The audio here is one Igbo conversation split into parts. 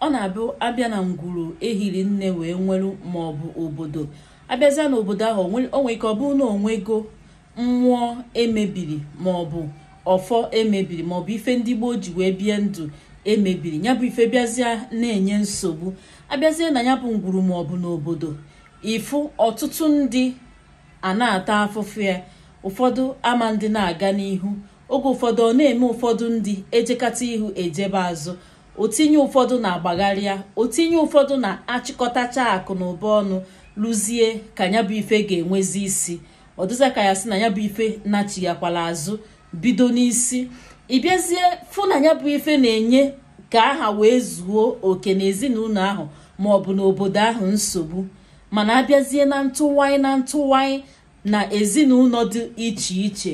ọ na-abụ abịa na ngwuru ehiri nne wee nweru maọbụ obodo abịazịa n'obodo ahụ onwe ike ọ bụrụ na onwego mmụọ emebiri maọbụ ọfọ emebiri maọbụ ife ndị gboo ji wee bie ndụ emebiri ya bụ ife bịazịa na-enye nsogbu abịazie na ya bụ ngwuru maọbụ n'obodo ịfụ ọtụtụ ndị a na-ata afụfụ ya ụfọdụ ama ndị na-aga n'ihu oge ụfọdụ ọ na-eme ụfọdụ ndị ejekata ihu ejebe azụ otinye ụfọdụ na-agbagharịa otinye ụfọdụ na-achịkọtacha akụ na ụba ọnụ lụzie ka ya bụ ife ga-enwezi isi ọdụza ka ya sị na ya bụ ife nachighakwala azụ bido n'isi ịbịazie fụ na ya bụ ife na-enye ka aha wee zuo oke na ezinụlọ ahụ ma ọ bụ n'obodo ahụ nsogbu mana abịazie na ntụwanyị na ntụwanyị na ezinụlọ dị iche iche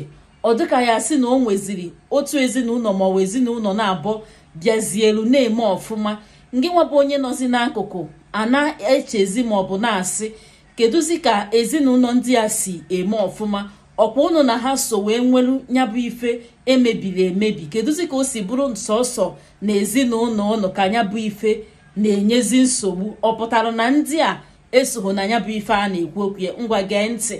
ọ dịka ya sị na o nweziri otu ezinụlọ ma ọ bụ ezinụlọ na-abọ bịazielu na-eme ọfụma ngị nwabụ onye nọzi n'akụkụ a na-echezi bụ na-asị kedụzi ka ezinụlọ ndị a si eme ọfụma ọkwa ụnụ na ha so wee nwelu nyabụ ife emebiri emebi kedụzi ka o si bụrụ nsọsọ na ezinụlọ ụnụ ka nyabụ ife na-enyezi nsogbu ọ pụtara na ndị a esogho na ya bụ ife a na-ekwu okwu ya ngwa gee ntị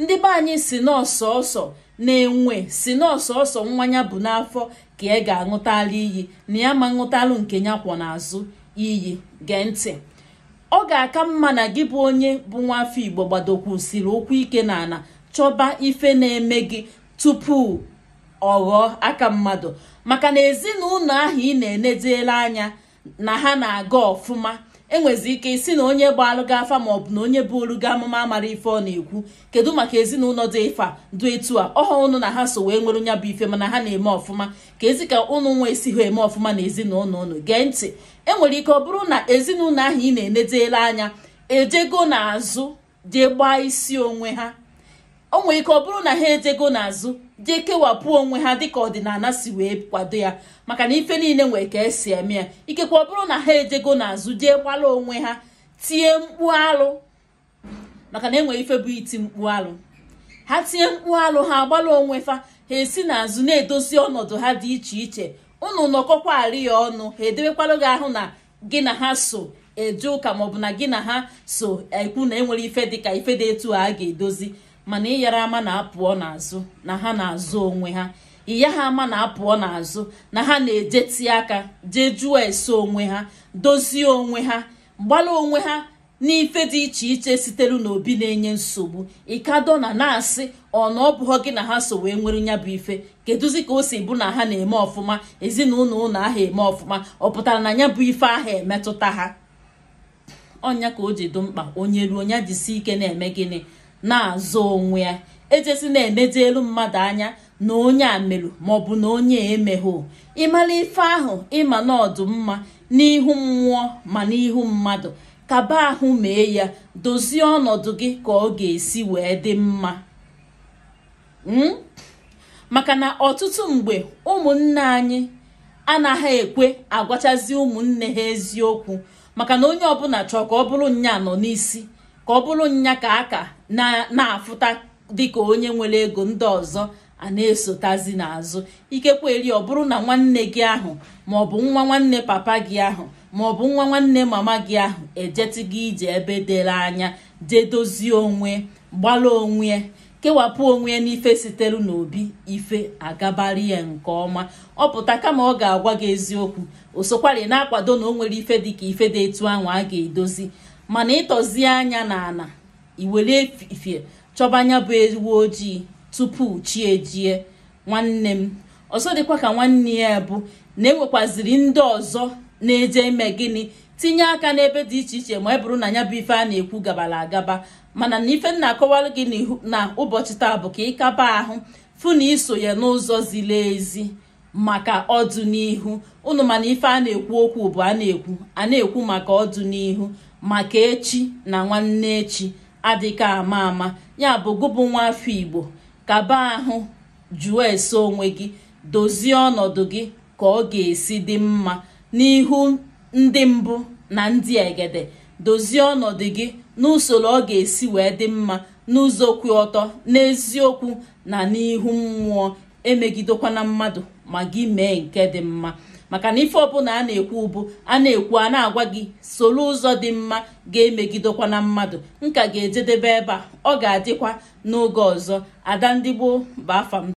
ndị be anyị si n'ọsọsọ na-enwe si n'ọsọsọ nwa ya bụ n'afọ ka ị ga-aṅụtala iyi na ya ma ṅụtalụ nke ya kwọ n'azụ iyi gee ntị ọ ga-aka mma na gị bụ onye bụ nwa afọ igbo gbadokwusiri ụkwụ ike na ala chọba ife na-eme gị tupu ọ ghọọ aka mmadụ maka na ezinụlọ ahụ ị na-enedela anya na ha na-aga ọfụma enwezi ike isi na onye bụ ma afa maọbụ na onye bụ ga amụma amara ife ọ na-ekwu kedu maka ezinụlọ dị ịfa dụ etu a ọha ụnụ na ha so wee nwere nya bụ ife mana ha na-eme ọfụma ka ezi ka ụnụ nwa esi ha eme ọfụma na ezinụlọ ụnụ gee ntị enwere ike ọ bụrụ na ezinụlọ ahụ ị na-enedela anya ejego n'azụ jee gbaa isi onwe ha o nwere ike ọ bụrụ na ha ejego n'azụ jee kewapụ onwe ha dịka ọdịnala si wee kwado ya maka na ife niile nwere ka esi eme ya ikekwa ọ bụrụ na ha ejego n'azụ jee gbalụ onwe ha tie mkpu alụ maka na enwere ife bụ iti mkpu alụ ha tie mkpu alụ ha gbalụ onwe fa ha esi n'azụ na-edozi ọnọdụ ha dị iche iche unu nọkọkwa arị ya ọnụ ha edebekwalụ gị ahụ na gị na ha so eje ụka maọbụ na gị na ha so ekwu na enwere ife dịka ife dị etu a ga-edozi mana ịyara ama na apụọ n'azụ na ha na-azụ onwe ha ịya ha ama na apụọ n'azụ na ha na-ejeti aka jee jụọ ese onwe ha dozie onwe ha gbala onwe ha n'ife dị iche iche sitere n'obi na-enye nsogbu ịkado na na-asị ọna ọ bụghọ gị na ha so wee nwere ya bụ ife kedụzi ka o si bụ na ha na-eme ọfụma ezinụlọ ụlọ ahụ eme ọfụma ọ pụtara na ya bụ ife ahụ emetụta ha ọnya ka o ji dị mkpa onye ruo ya jisi ike na-eme gịnị na-azụ onwe ya ejesi na-eneji elu mmadụ anya na onye a maọbụ na onye emeghụ ịmara ife ahụ ịma na mma n'ihu mmụọ ma n'ihu mmadụ kaba ahụ mee ya dozie ọnọdụ gị ka ọ ga-esi wee dị mma hmm? maka na ọtụtụ mgbe ụmụnne anyị anaghị ekwe agwachazi ụmụnne ha eziokwu maka na onye ọbụla chọọ ka ọ bụrụ nya nọ n'isi ka ọ bụrụ nya ka aka na-afụta dịka onye nwere ego ndị ọzọ a na-esotazi n'azụ ikekwe ọ bụrụ na nwanne gị ahụ maọbụ nwa nwanne papa gị ahụ maọbụ nwa nwanne mama gị ahụ ejeti gị ije ebe dere anya jee dozie onwe gbalụ onwe kewapụ onwe ya n'ife sitere n'obi ife agabara ya nke ọma ọ pụta kama ọ ga-agwa gị eziokwu o sokwari na-akwado na o nwere ife dịka ife dị etu ahụ a ga-edozi mana ịtọzie anya n'ala iwere efifie chọba anya bụ ewu ojii tupu chi ejie nwanne m ọzọ dịkwa ka nwanne ya bụ na enwekwaziri ndị ọzọ na-eje ime gịnị tinye aka n'ebe dị iche iche ma ọ e bụrụ na ya bụ ife a na-ekwu gabara agaba mana na ife nna akọwara gị na ụbọchị taa bụ ka ịkaba ahụ fụ na iso ya n'ụzọ ziri ezi maka ọdụ n'ihu unu mana ife a na-ekwu okwu bụ a na-ekwu a na-ekwu maka ọdụ n'ihu maka echi na nwanne echi adịka ama ama ya bụ gụbụ nwa afọ igbo kaba ahụ jụọ ese onwe gị dozie ọnọdụ gị ka ọ ga-esi dị mma n'ihu ndị mbụ na ndị egede dozie ọnọdụ gị n'usoro ọ ga-esi wee dị mma n'ụzọ kwụ ọtọ n'eziokwu na n'ihu mmụọ emegidekwana mmadụ ma gị mee nke dị mma maka na ife ọbụla a na-ekwu ụbụ a na-ekwu a na-agwa gị soro ụzọ dị mma ga-emegidekwa na mmadụ nka ga-ejedebe ebe a ọ ga-adịkwa n'oge ọzọ ada ndị gboo bụ afa m